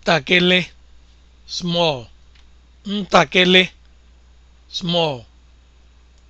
ntakịrị small small